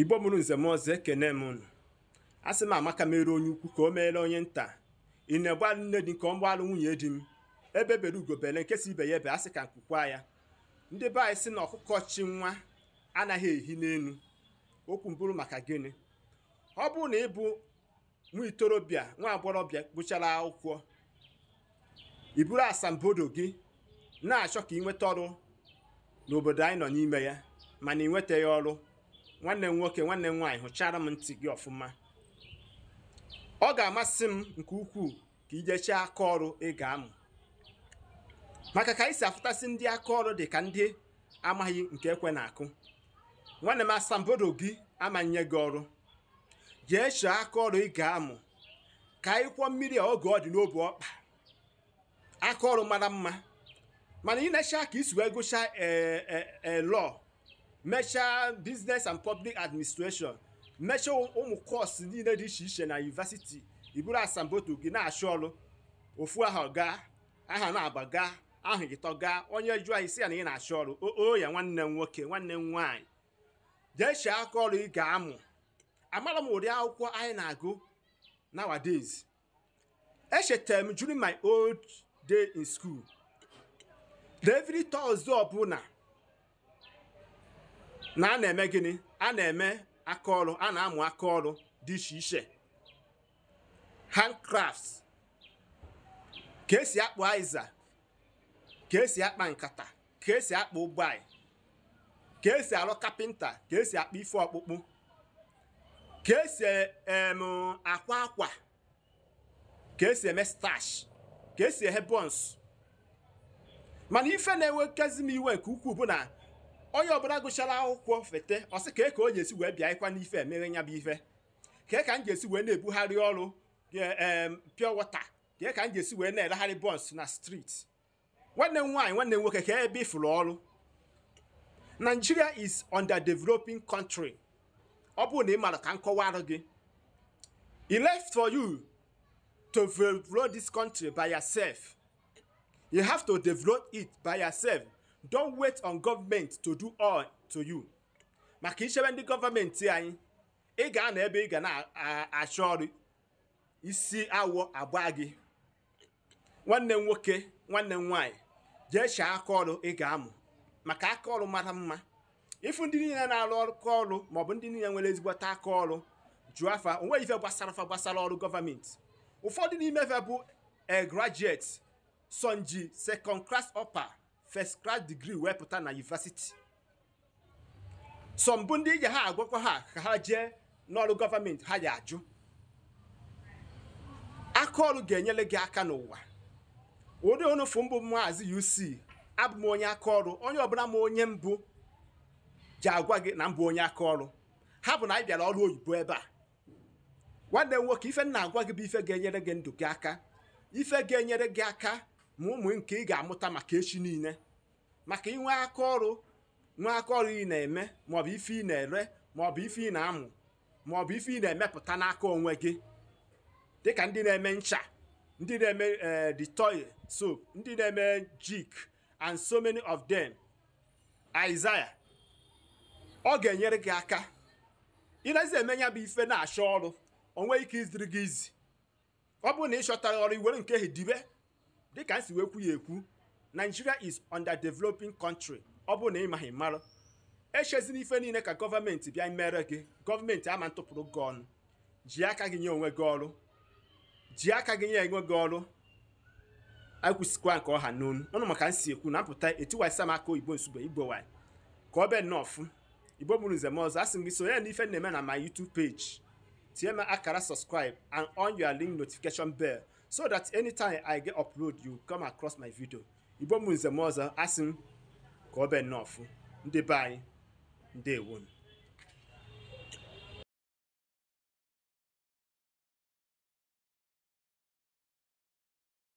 igbo mụrụ nze m ọzọ ekene m unu asị m amaka mere onye ukwu ka o meela onye nta ị na-egbu alụ nne dị nke ọ mgbaalụ nwunye di m ebe bere ugobele nke si ibe ya ebe asị ka nkwukwa ya ndị be anyị si na ọkụkọ chi nwa anaghị ehi n'elu okwu mbụrụ maka gịnị ọ bụrụ na ịbụ bụ nwa itorobịa nwa akwụkwọ iburu asambodo gị na-achọ ka ị nweta ọrụ n'obodo anyị nọ n'ime ya mana ị nwetaghị ọrụ nwanne m nwoke nwanne m nwaanyị hụchara m ntị gị ọfụma ọ ga-amasị m nke ukwuu ka ị jechee aka ọrụ ị ga-amụ maka ka anyị si afụtasị ndị aka ọrụ dị ka ndị amaghị nke ekwe na-akụ nwanne m asambodo gị amanye gị ọrụ jee chọọ aka ọrụ ị ga-amụ ka anyị kwụọ mmiri a oge ọ dị n'obi ọkpa aka ọrụ mara mma mana ị na-eche ka isi wee gụchaa ee eh, eh, eh, lọọ mechaa business and public administration mechaa ụmụ kọọsụ niile dị iche iche na yunivesiti iburu asamboto gị na-achụ ọrụ ofu aha gaa aha na-aba gaa aha gị tọ onye jụọ anyị si ya na ị na-achụ ọrụ ya nwanne m nwoke nwanne m nwanyị. jee chee aka ọrụ ị ga-amụ amara m ụdị akwụkwọ anyị na-agụ nowadays echetara m during my old day in school every Thursday ọbụla na a na-eme gịnị a na-eme aka ọrụ a na-amụ aka ọrụ dị iche iche handcrafts ka esi akpụ aịza ka esi akpa nkata ka esi akpụ ụgbọị ka esi arụ kapịnta ka esi akpa ife ọkpụkpụ ka esi akwa akwa ka esi eme stash ka esi ehe bọns mana ife na-ewekezi m iwe nke ukwuu bụ na onye ọbụla gụchara akwụkwọ fete ọsị sị ka ka o ji esi wee bịa ịkwa n'ife emere nya bụ ife ka ka m ji esi wee na-ebugharị ọrụ e, pure water ka ka m ji esi wee na-elegharị bọs na street nwanne m nwaanyị nwanne m nwoke ka ebe ịfụrụ ọrụ Nigeria is developing country ọ bụrụ na ị mara ka m kọwarụ gị It left for you to develop this country by yourself. You have to develop it by yourself. don't wait on government to do all to you maka ichebe ndị gọọmenti anyị ị ga-anọ ebe ị ga na-achọ ọrụ isi awọ agba gị nwanne m nwoke nwanne m nwaanyị jee chaa aka ọrụ ị ga-amụ maka aka ọrụ mara mma ịfụ ndị niile na-arụ aka ọrụ maọbụ ndị niile nwere ezigbote aka ọrụ jụọ afa onweghị ife gbasara afa gbasara ọrụ gọọmenti ụfọdụ n'ime ife bụ a sonji sekond klas ọpa. first class degree wee pụta na yunivasiti sọ mbụ ndị ji ha agwakwa ha ka ha jee n'ọrụ gọọmenti ha ya ajụ aka ọrụ ga-enyere gị aka n'ụwa ụdị onufu mbụ maazị UC abụ m onye aka ọrụ onye ọbụla m onye mbụ ji agwa gị na mbụ onye aka ọrụ ha bụ na anyị bịara ọrụ oyibo ebe a nwanne m nwoke ife nna agwa gị bụ ife ga-enyere gị ndụ gị aka ife ga-enyere gị aka ma ụmụ nke ị ga-amụta maka echi niile maka inwe aka ọrụ nwe aka ọrụ ị na-eme maọbụ ife ị na-ere maọbụ ife ị na-amụ maọbụ ife ị na-emepụta n'aka onwe gị dịka ndị na-eme ncha ndị na-eme e, toy soap ndị na-eme jik and so many of them Isaiah ọ ga-enyere gị aka ịnazi eme ya bụ ife na-achọ ọrụ onwe ike iziri gị izi ọ bụrụ na ị chọtara ọrụ iwere nke ahụ dibe dịka m si wee kwu ya ekwu Nigeria is developing country ọ bụrụ na ị maghị mara echezina ife niile ka gọọmenti bịa mere gị gọọmenti ama ntụpụrụ gị ọnụ ji aka gị nye onwe gị ọrụ ji aka gị nye enwe gị ọrụ akwụsịkwa nke ọha n'onu ọnụ maka nsi ekwu na mpụta etiwaisa m aka oyibo nsugbe igbo ka ọ bee nnọọfụ fụ igbo bụrụ nze ọzọ a sị m gị sonye na ife na-eme na ma YouTube page TMI Akara subscribe and on your link notification bell so that anytime I get upload you come across my video. Igbo m Nze Muoza asị m ka ọ bụ nnọọ ndị be anyị ndewonu